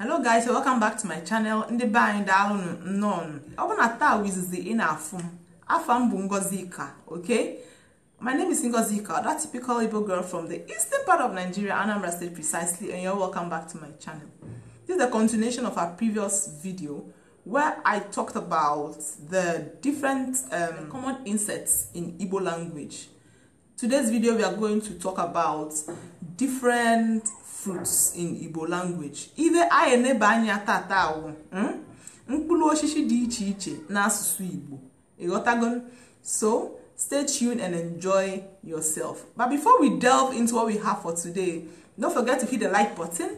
hello guys welcome back to my channel ndị be anyị daalụnụ nnọọ ọ bụ na taa wizizi ị na-afụ m afa m bụ ngozi ika okay my name is ngozi ika that typical igbo girl from the eastern part of nigeria anambra state precisely and you're welcome back to my channel this is a continuation of our previous video where i talked about the different um, common insects in igbo language today's video we are going to talk about different fruits in igbo language ibe anyị eneba anya tata awụ hmm? mkpụrụ osisi dị iche iche n'asụsụ igbo ịghọtago so stay tuned and enjoy yourself but before we delve into what we have for today don't forget to hit the like button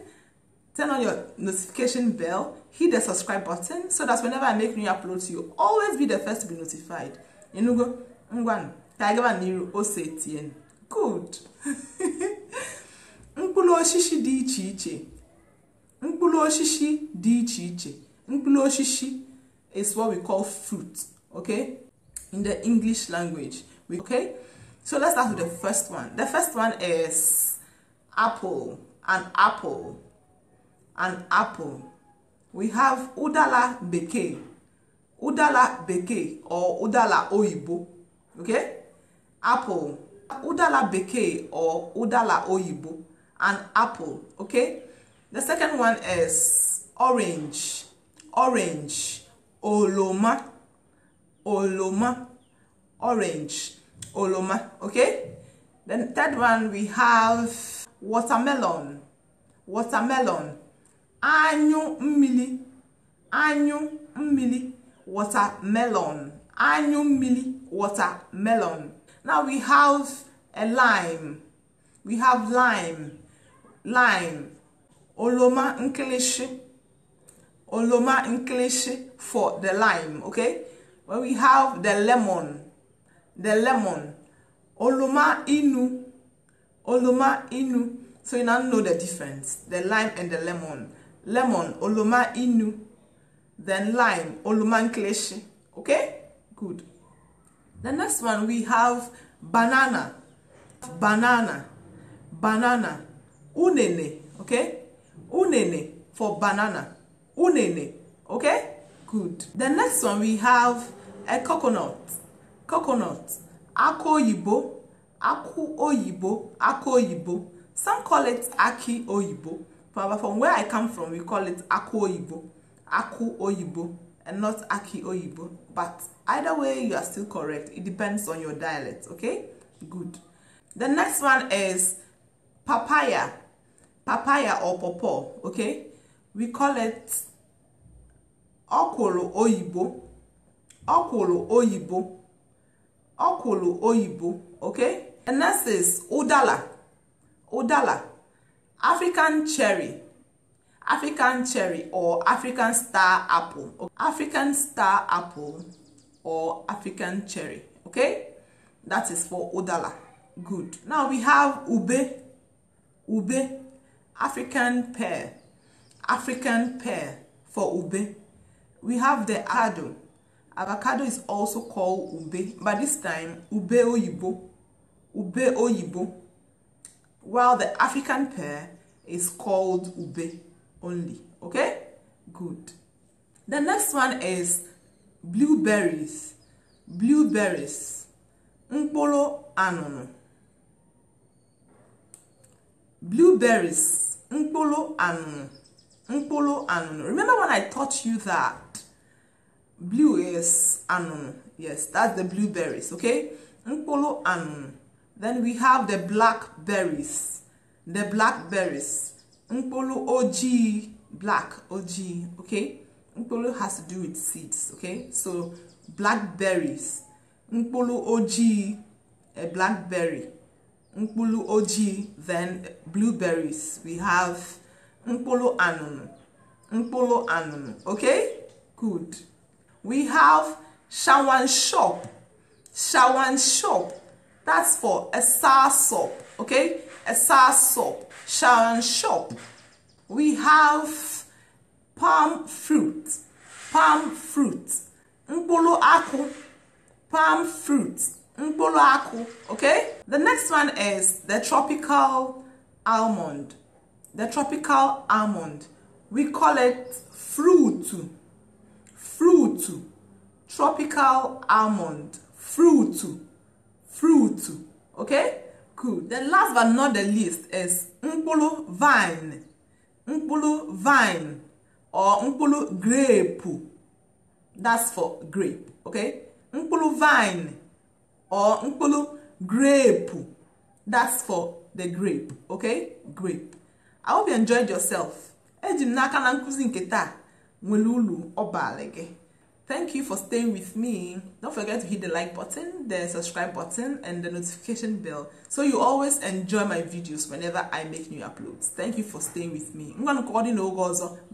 turn on your notification bell hit the subscribe button so that whenever i make new upload to you always be the first to be notified enugo ngwanụ ka anyị gaba n'iru ose tien good mkpụrụ osisi dị iche iche mkpụrụ osisi dị iche iche mkpụrụ osisi is what we call fruit okay in the english language okay so let's start with the first one the first one is apple an apple an apple we have udala beke, udala beke, or udala oyibo okay apple udala beke or udala oyibo and apple okay the second one is orange orange oloma oloma orange oloma okay then third one we have watermelon watermelon anyu mmili anyu mmili watermelon anyu mmili watermelon now we have a lime we have lime lime oloma nkilishi oloma nkilishi for the lime okay when we have the lemon the lemon oloma inu oloma inu so you now know the difference the lime and the lemon lemon oloma inu then lime oloma nkilishi okay good the next one we have banana banana banana unene, okay? Unene for banana. Unene, okay? Good. The next one we have a coconut. Coconut. Ako oyibo, aku oyibo, ako oyibo. Some call it aki oyibo, but from where I come from, we call it aku oyibo, aku oyibo, and not aki oyibo. But either way, you are still correct. It depends on your dialect, okay? Good. The next one is papaya papaya or pawpaw okay we call it ọkwụrụ oyibo ọkwụrụ oyibo ọkwụrụ oyibo okay and next is udala udala african cherry african cherry or african star apple african star apple or african cherry okay that is for udala good now we have ube ube African pear, African pear for ube. We have the avocado. Avocado is also called ube, but this time ube oyibo, ube oyibo. While the African pear is called ube only. Okay, good. The next one is blueberries, blueberries, mkpolo anunu, blueberries. Nkpolo and Nkpolo and Remember when I taught you that blue is and Yes, that's the blueberries, okay? Nkpolo and Then we have the blackberries. The blackberries. Nkpolo OG, black OG, okay? Nkpolo has to do with seeds, okay? So blackberries. Nkpolo OG, a blackberry mkpụrụ ojii then blueberries we have mkpụrụ anụnụ mkpụrụ anụnụ okay good we have shawan shop shawan shop that's for esa sop okay esa sop shawan shop we have palm fruit palm fruit mkpụrụ akụ palm fruit mbolo okay? The next one is the tropical almond. The tropical almond. We call it fruit. Fruit. Tropical almond. Fruit. Fruit. Okay? cool. The last but not the least is mbolo vine. Mbolo vine or mbolo grape. That's for grape. Okay? Mbolo vine. or mkpụrụ grape that's for the grape okay grape i hope you enjoyed yourself eji m n'aka na nkụzi nke taa nwere ulu ọbalị gị thank you for staying with me don't forget to hit the like button the subscribe button and the notification bell so you always enjoy my videos whenever i make new uploads thank you for staying with me ngwanụ ka ọ dị n'oge ọzọ